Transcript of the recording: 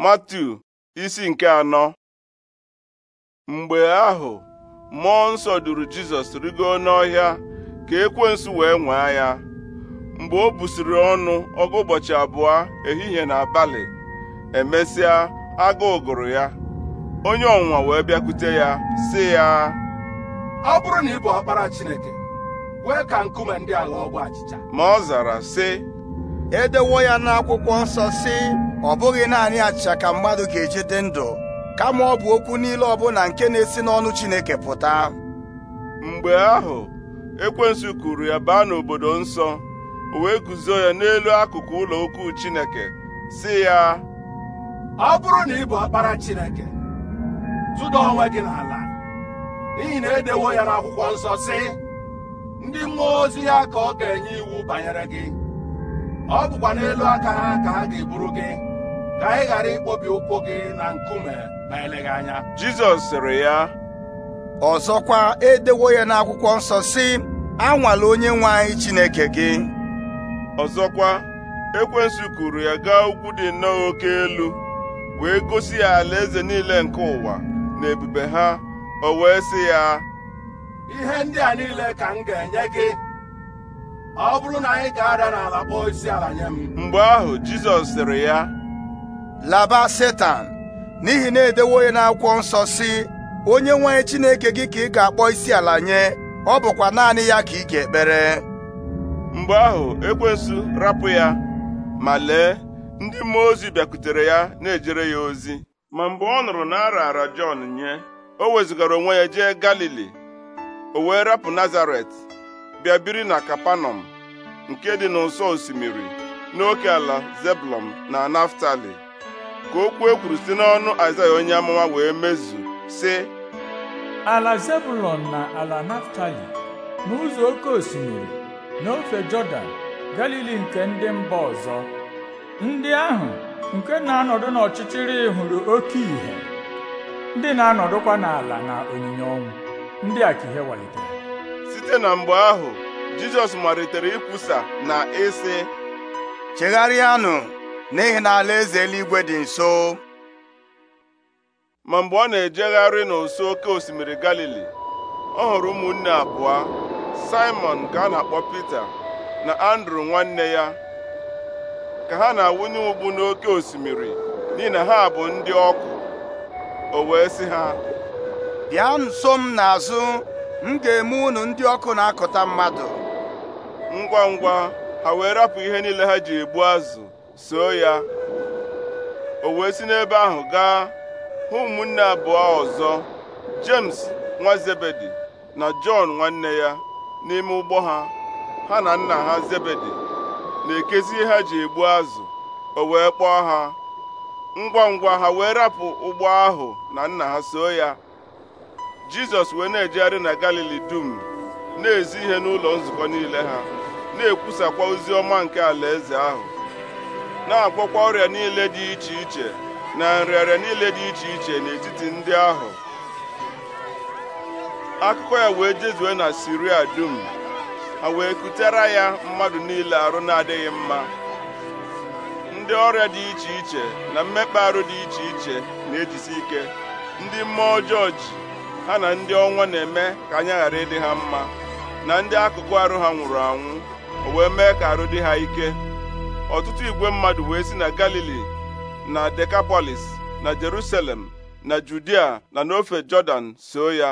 matu isi nke anọ mgbe ahụ mmụọ nsọ duru Jizọs rigo n'ọhịa ka ekwensu wee nwaa ya mgbe o busiri ọnụ ọgụ ụbọchị abụọ ehihie na abalị emesịa agụụ gụrụ ya onye ọnwụnwa wee bịakwute ya sị ya ọ bụrụ na ị ọkpara Chineke kwee ka nkume ndị ọgwụ achịcha ma ọ zara sị edewo ya n'akwụkwọ nsọ si ọ bụghị naanị achịcha ka mmadụ ga-eji dị ndụ kama ọ bụ okwu niile ọbụla nke na-esi n'ọnụ Chineke pụta mgbe ahụ ekwensu kuru ya baa n'obodo nsọ o wee guzo ya n'elu akụkụ ụlọ ukwu Chineke si ya ọ bụrụ na ị bụ ọkpara Chineke tụda onwe gị n'ala n'ihi na edewo ya n'akwụkwọ nsọ si ndị mmụọ ozi ya ka ọ ga-enye iwu banyere gị ọ bụkwa n'elu aka ha ka ha ga-eburu gị ka ị ghara ịkpọbi ụkwụ gị na nkume na eleghị anya Jizọs sịrị ya ọzọkwa edewo ya n'akwụkwọ nsọ sị anwala onye nwe anyị Chineke gị ọzọkwa ekwensu kuru ya gaa ugwu dị nnọọ oke elu wee gosi ya ala eze niile nke ụwa na ebube ha o wee sị ya ihe ndị a niile ka m ga-enye gị ọ bụrụ na anyị ga-ada n'ala kpọọ isi ala nye m mgbe ahụ Jizọs sịrị ya laba Setan n'ihi na edewo ya n'akwụkwọ nsọ si onye nwe Chineke gị ka ị ga-akpọ isi ala nye ọ bụkwa naanị ya ka ị ga-ekpere mgbe ahụ ekwensu rapụ ya ma lee ndị mmụọ ozi bịakutere ya na-ejere ya ozi ma mgbe ọ nụrụ na a Jọn nye o wezụgara onwe ya jee Galili o wee rapụ Nazaret bịa biri na kapanọm nke dị n'ụsọ osimiri n'oke ala zeblọm na naftali ka okwu e kwuru si n'ọnụ aịzaya onye amụma wee mezu sị ala Zebulon na ala naftali n'ụzọ oke osimiri n'ofe jọdan galili nke ndị mba ọzọ ndị ahụ nke na-anọdụ n'ọchịchịrị hụrụ oke ìhè ndị na-anọdụkwa n'ala na onyinye ọnwụ ndị a ka ihe walitere site na mgbe ahụ jizọs malitere ikwusa na ịsị chegharịanụ n'ihi na alaeze eluigwe dị nso ma mgbe ọ na-ejegharị n'ụsọ oke osimiri galili ọ hụrụ ụmụnne abụọ simon ka a na-akpọ pita na andrew nwanne ya ka ha na-awụnye ụgbụ n'oke osimiri n'ihi na ha bụ ndị ọkụ o wee sị ha bịa nso m n'azụ m ga-eme unu ndị ọkụ na-akụta mmadụ ngwa ngwa ha wee rapụ ihe niile ha ji egbu azụ soo ya o wee si n'ebe ahụ gaa hụ ụmụnne abụọ ọzọ James nwa Zebedi na Jọn nwanne ya n'ime ụgbọ ha ha na nna ha Zebedi na-ekezi ihe ha ji egbu azụ o wee kpọọ ha ngwa ngwa ha wee rapụ ụgbọ ahụ na nna ha soo ya jizọs wee na-ejegharị na galili dum na-ezi ihe n'ụlọ nzukọ niile ha na-ekwusakwa ozi ọma nke alaeze ahụ na-agwọkwa ọrịa niile dị iche iche na nrịarịa niile dị iche iche n'etiti ndị ahụ akụkọ ya wee jezue na siria dum ha wee kutere ya mmadụ niile arụ na-adịghị mma ndị ọrịa dị iche iche na mmekpa arụ dị iche iche na-ejisi ike ndị mmụọ ọjọọ ji ha na ndị ọnwa na-eme ka anya ghara ịdị ha mma na ndị akụkụ arụ ha nwụrụ anwụ o wee mee ka arụ dị ha ike ọtụtụ igwe mmadụ wee si na galili na dekapolis na jerusalem na judia na n'ofe jọdan soo ya